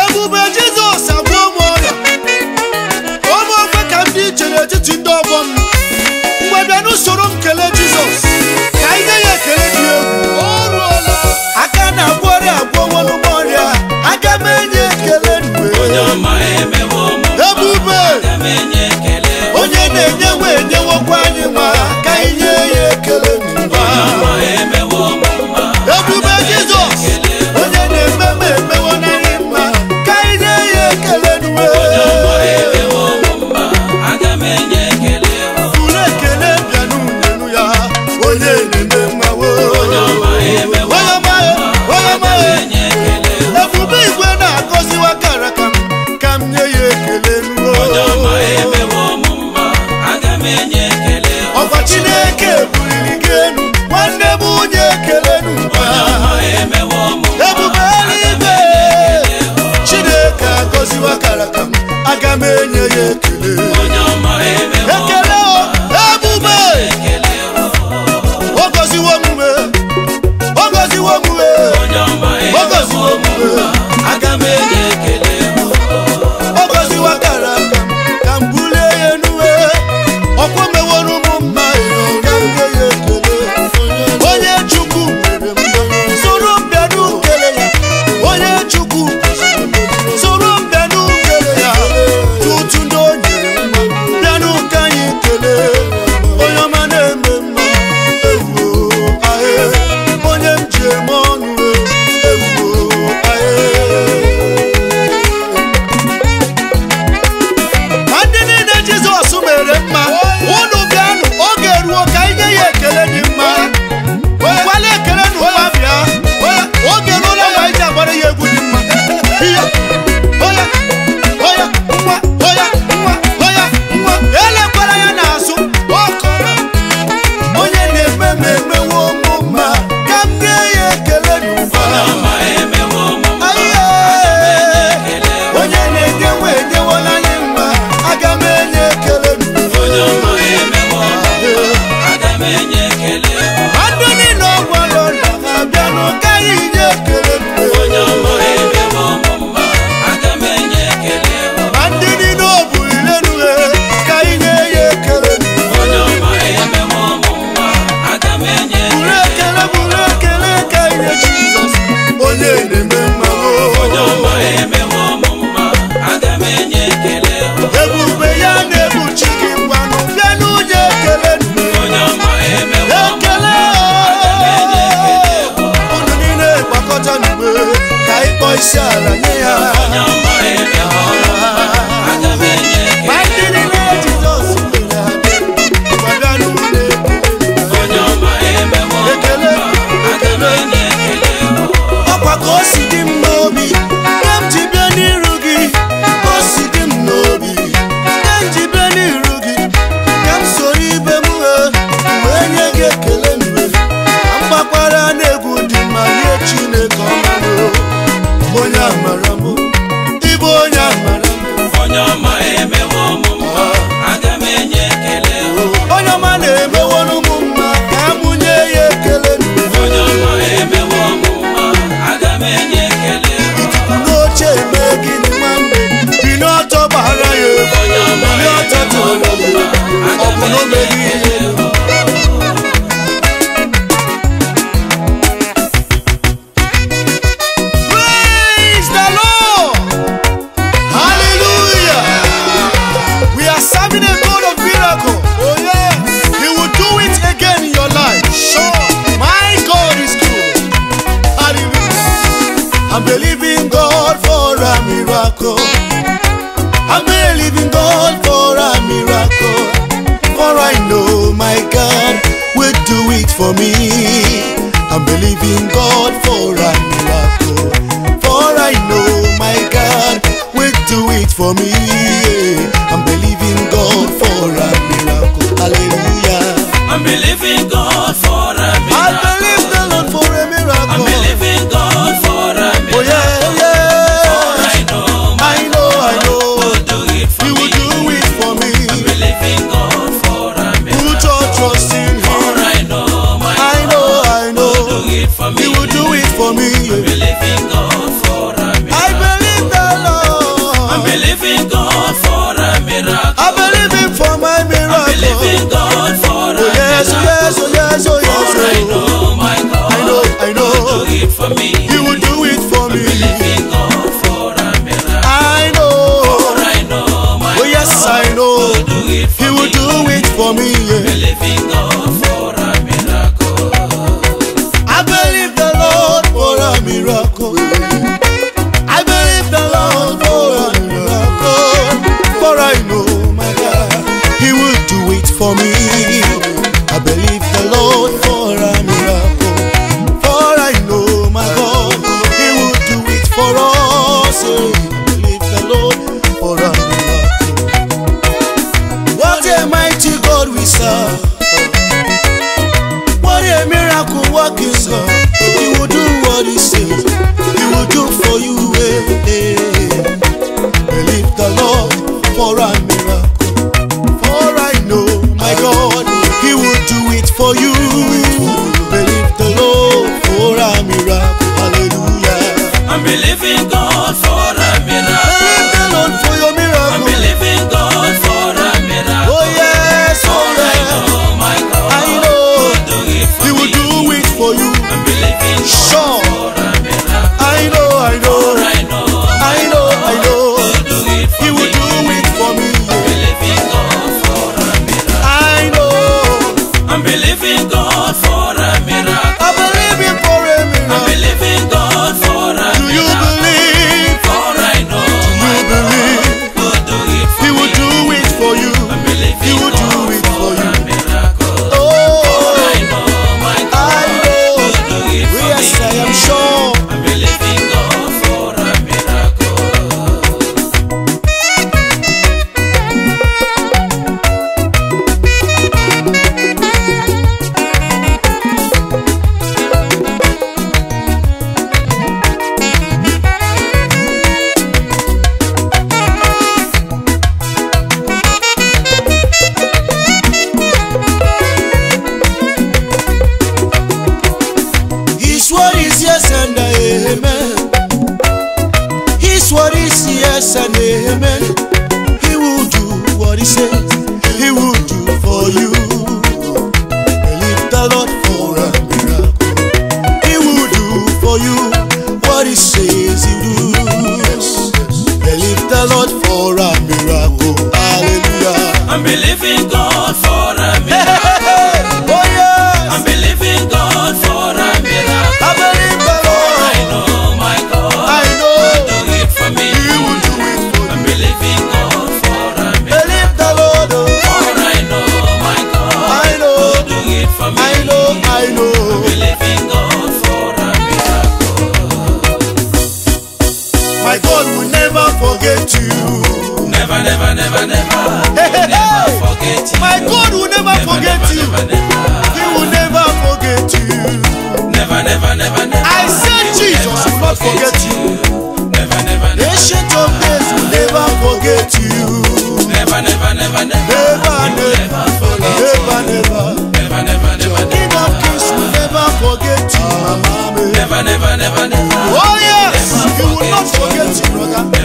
ebube jizọs abụ ụmụ ọrịa ụmụ ofe ka m dị iche n'etiti ndị ọgbọ m mgbe bịa n'usoro nkele jizọs ka anyị ya ekele dị egwu aka na-agwọ ọrịa agwọ nwanụgbọ ọrịa aga m enye ekele ebube onye na-enyewe enyewokwa anyị nwa ka anyị ya ekele for me for me never, never, never, hey, hey, never forget you. My God will never, never forget never, you. Never, never, he will never forget you. Never, never, never, never. I said he Jesus will not forget you. Never, never, never. Ancient of days will never forget you. Never, never, never, never. Never, never, never, never. Never, never, never, never. never, of Kings will never forget you. Never, never, never, never. Oh yes, he will not forget you, brother.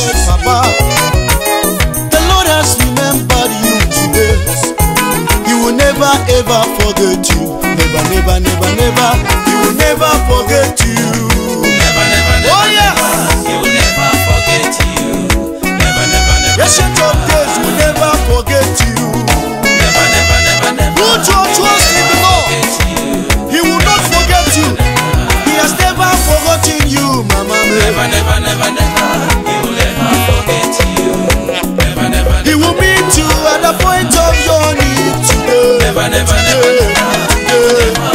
yes, Papa. The Lord has remembered you today. He will never ever forget you. Never, never, never, never. He will never forget you. Never, never, never. Oh, yeah. He will never forget you. Never, never, never. Yes, your days will never forget you. Never, never, never, never. Put your trust. point of your need today. Never, never, never, never. never.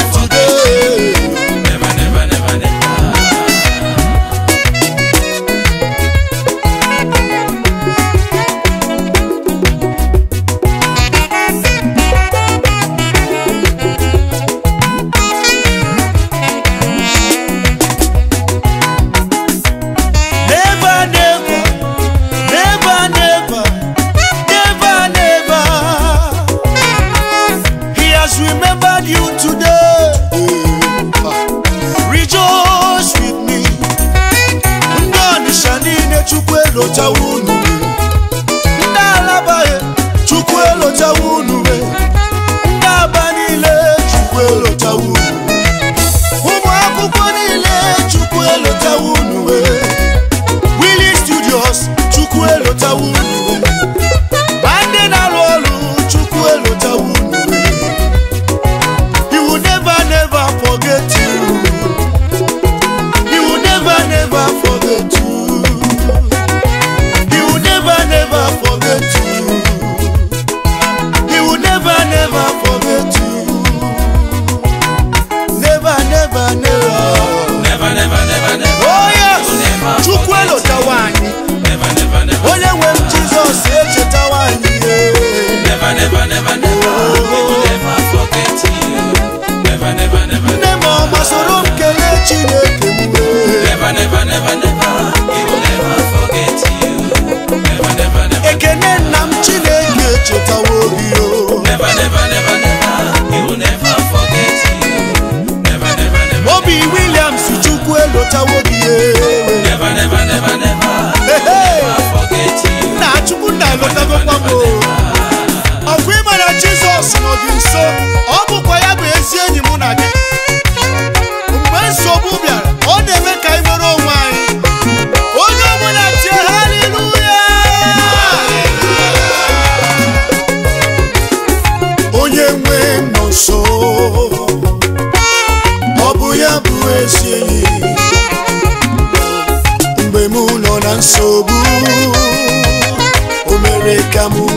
nsogbu o mere ka m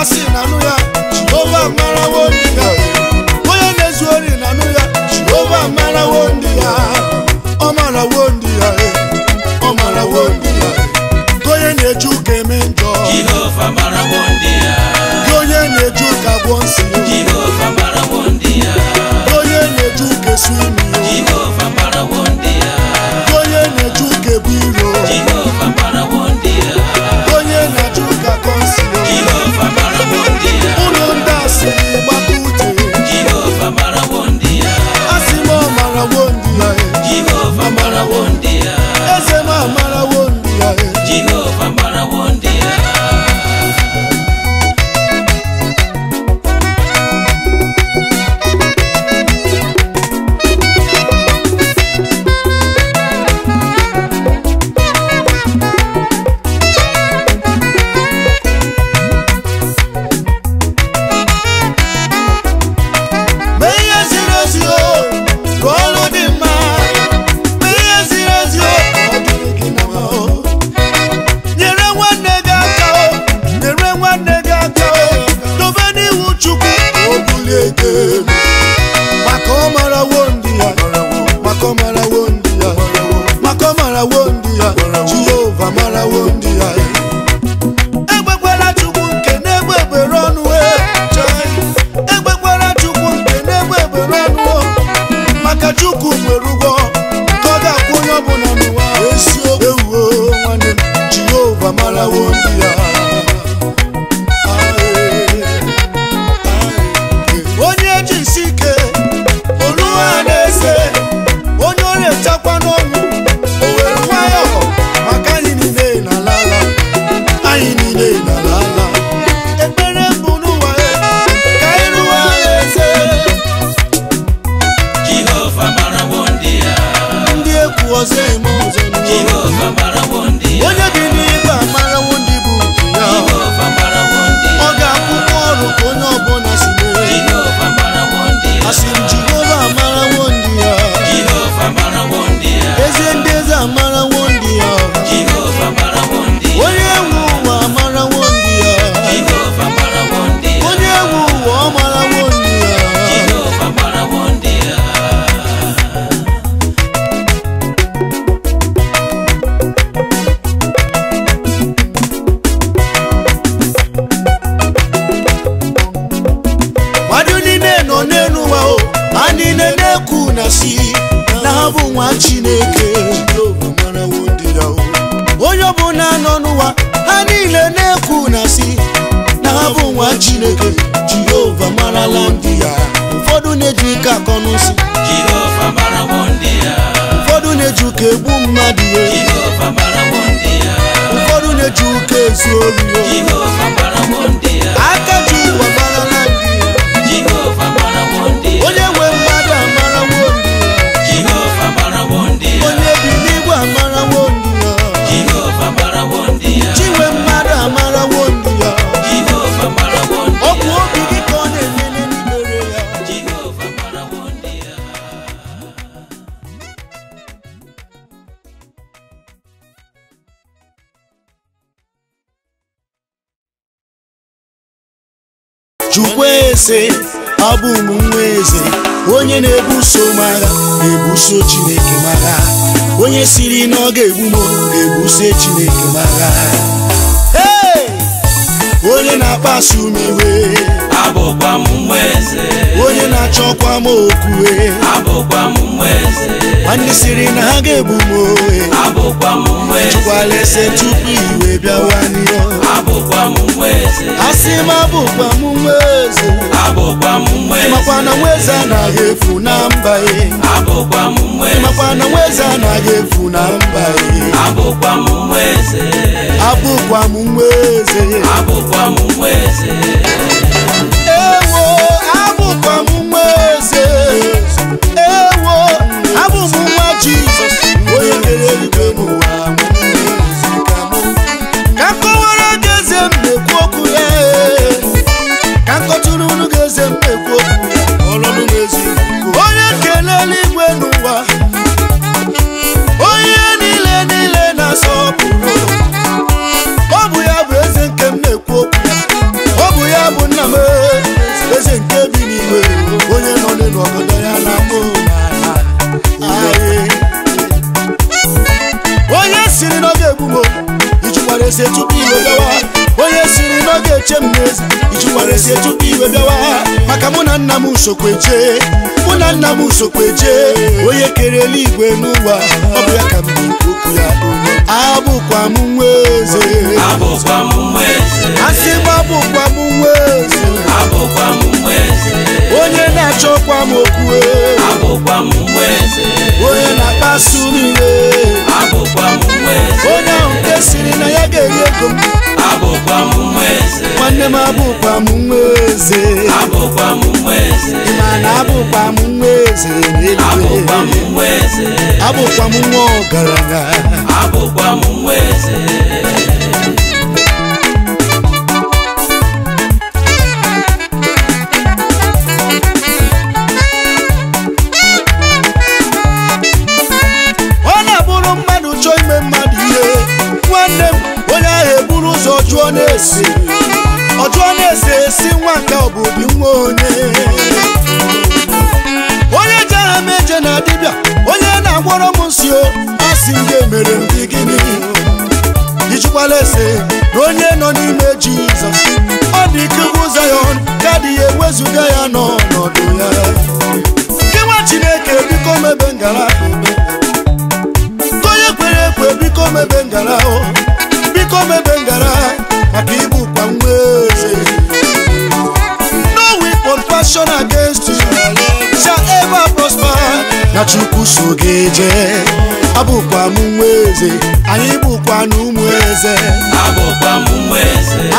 na-asị na anụ ya Jehova marawo ndị ya onye na-ezu ori na anụ ya Jehova marawo ndị ya ọ marawo ndị ya e. ọ marawo ndị ya e. onye na-eji ụka eme njọ Jehova marawo ndị ya onye na-eji ụka gwọ nsị Jehova marawo ndị ya onye na-eji ụka esu mara wondia Jehovah mara wondia na-asị na ha bụ nwa Chineke onye ọbụla nọ n'ụwa ha niile na-ekwu na si, na ha bụ nwa Chineke Jehova marala ndị ya ụfọdụ na-eji ike akọ n'ụsị ụfọdụ na-eji ụka egbu mmadụ ụfọdụ na-eji ụka ezu olu aka sị abụ m nwa eze onye na-ebuso m agha na-ebuso Chineke m'agha. onye siri na ọ ga-egbu m na-ebuso Chineke m'agha. onye na akpasu m iwe abụkwa m nwa eze onye na-achọkwa m okwu abụkwa m nwa eze ndị siri na ha ga-egbu m ohe abụkwa m nwa eze chụkwala ese tupu iwe bịawa asi mabukwa mumwezi makwana mweza nahefu na mbae makwana mweza nahefu na mbae abukwa mumweze Jesus, we are m n'ezi iji were iwe bịawa maka mụ na nna m usokwe jee mụ na nna m usokwe jee onye kere eluigwe n'ụwa ọ bụ ya ka m bụ okwu ya abụkwa m nwa eze asị m abụkwa m nwa eze onye na-achọkwa m okwu onye na-akpasu m iwe onye ahụ nke siri na ya ga-eri ego m nwanne m abụkwa m nwa eze mana abụkwa m nwa eze abụkwa m nwa ọgaranya abụkwa m nwa eze esi na-ese esi nwa nke obodo nwa onye onye jere m eje na dibịa onye na-agwọrọ m nsi asị ndị emere ndị gịnị ijikwala ese na onye nọ n'ime jizọs ọ dị ike ugwu zayọn ka dị ewezụga ya n'ọnọdụ ya gị nwa chineke biko mebe ngara chukwu so gị jee abụkwa m nwa eze anyị bụkwa na ụmụ eze abụkwa m nwa eze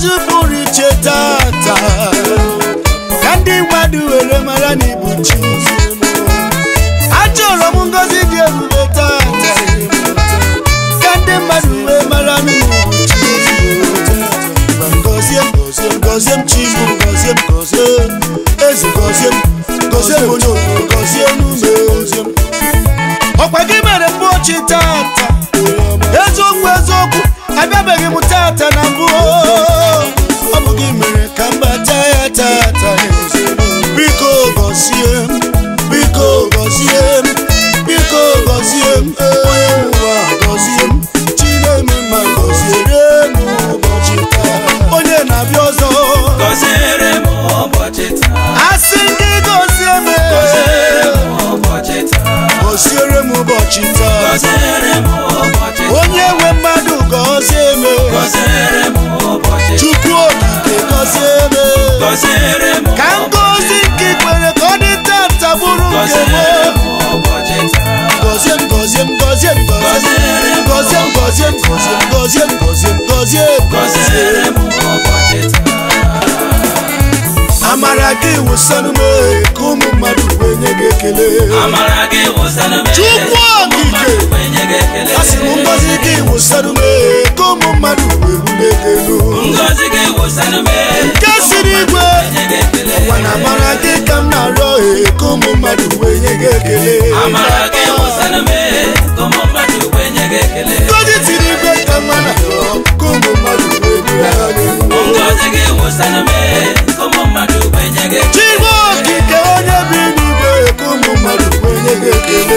zvibuni chetata kandimwadi weremarani buchi acholo mungozi dyerube tata kandimwadi wemarani okwagimere mbochi tata ezokwu ezokwu abịabeghị m tata na mbụ ka ngozi nke kwere ka ọ dị tata bụrụ nke gozie m gozie m gozie m gozie m gozie m gozie m gozie m gozie m gozie m amara gị wụsanụ m ka ụmụ mmadụ wee nye gị ekele chukwu okike kasi eh, ngozi kiwusanume komo madu ebumekelu nkesirigwe wana mara kikam na ro e komo madu enyegekele ngozi tirigwe kamana komo madu eduale chigwo kike onye bi nube komo madu enyegekele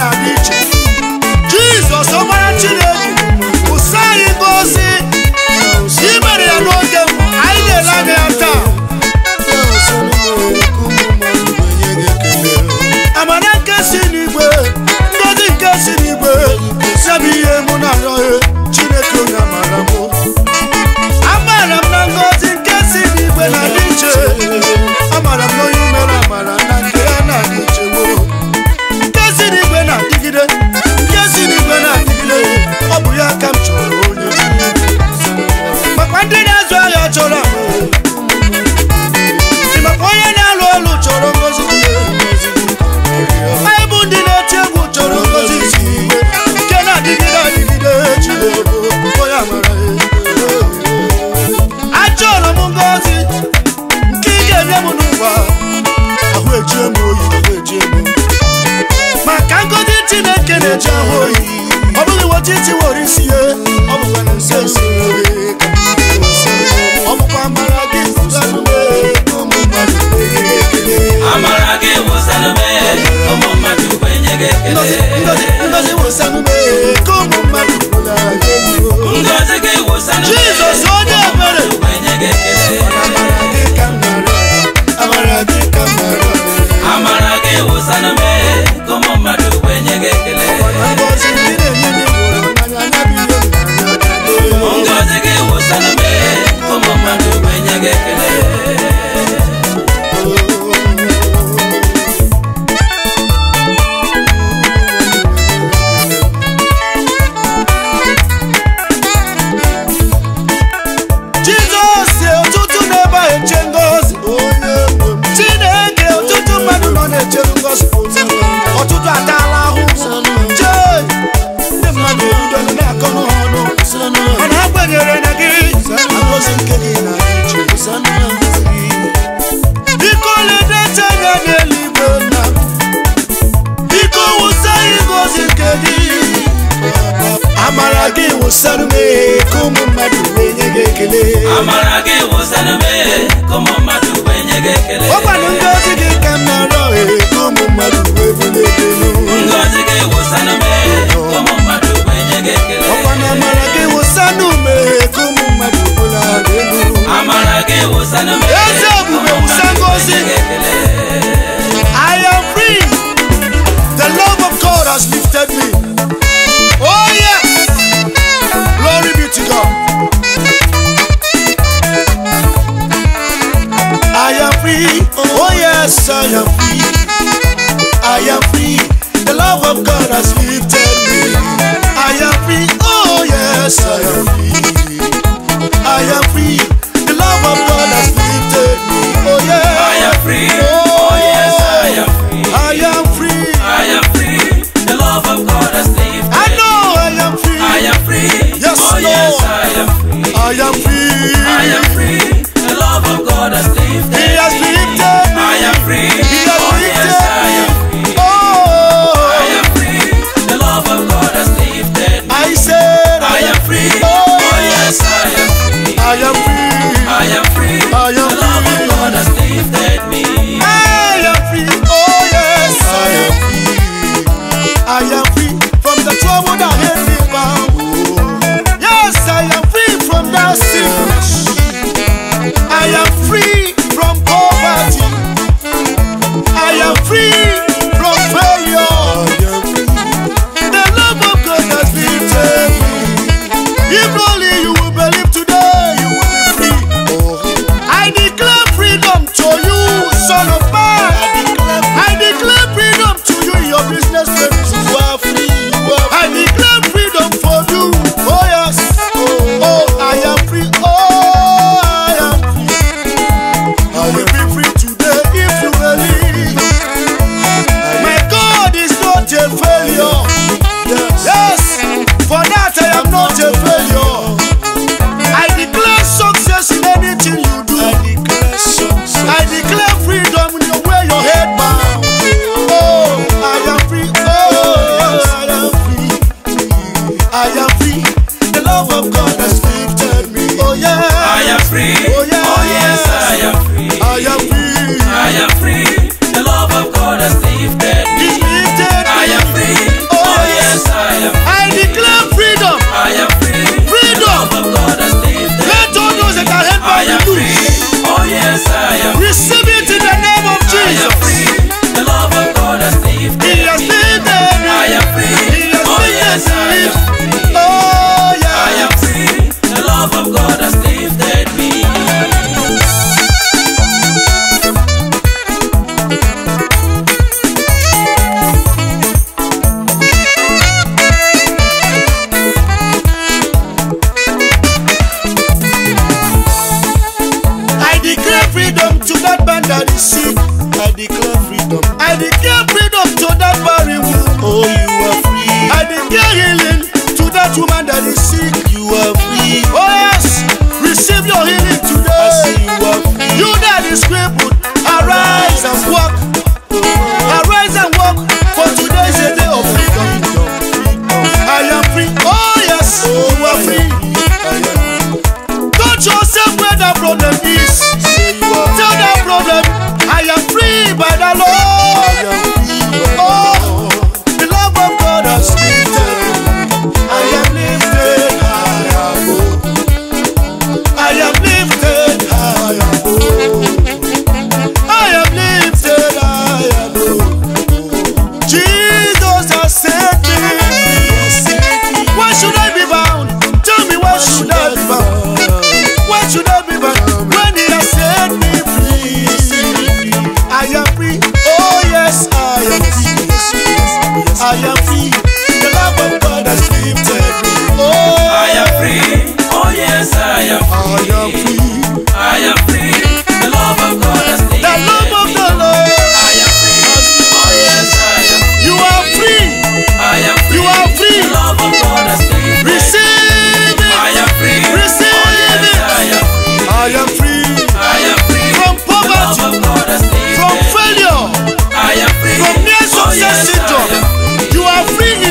na-adị iche jizọs ọgbara chineke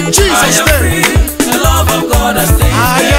In Jesus' name. The love of God has taken.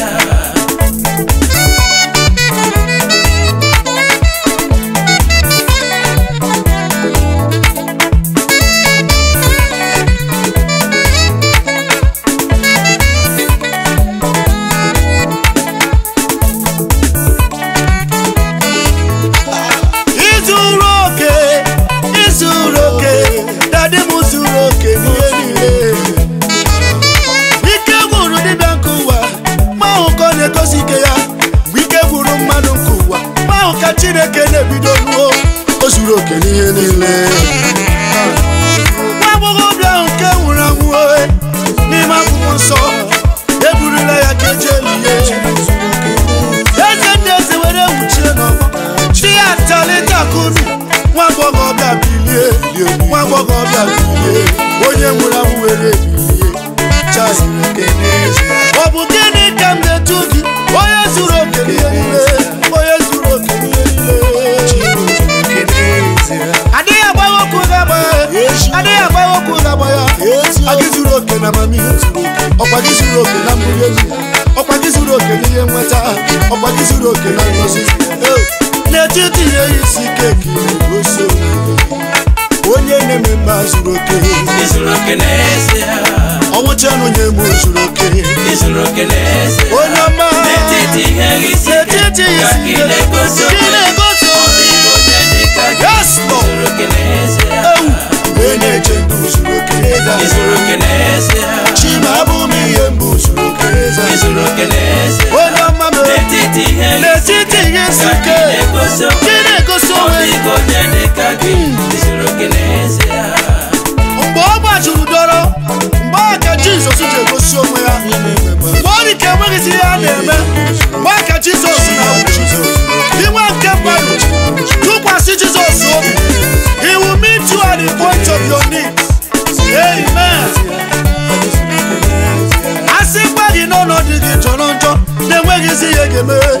isi ya ga-eme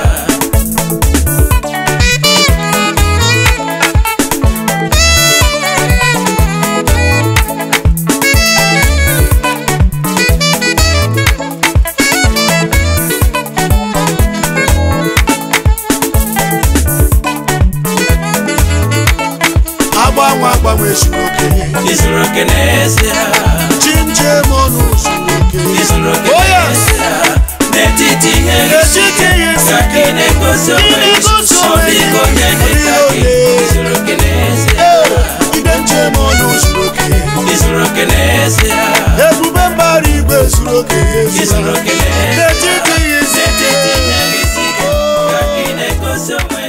Isso não quer dizer Isso não quer dizer Isso não quer dizer Aqui nem consome